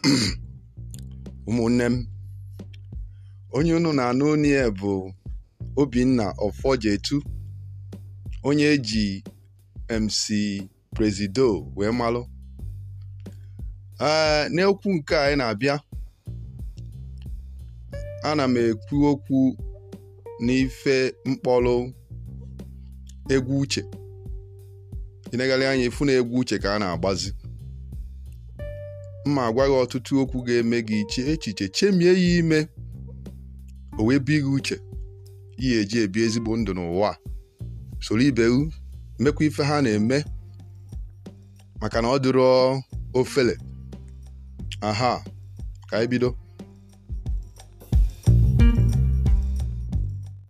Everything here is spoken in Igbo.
ụmụnne m onye unu na-anụ onye bụ Obinna Ọfọjetu onye eji MC Presido wee malụ ee n'okwu nke anyị na-abịa ana m ekwu okwu n'ife mkpọrụ egwu uche inegarị anya ifu na egwu uche ka a na-agbazi mma agwa gị ọtụtụ okwu ga-eme gị iche echiche chemie ya ime o wee bi gị uche ihe eji ebi ezigbo ndụ n'ụwa soro ibe mekwa ife ha na-eme maka na ọ dịrọ ofele aha ka anyị bido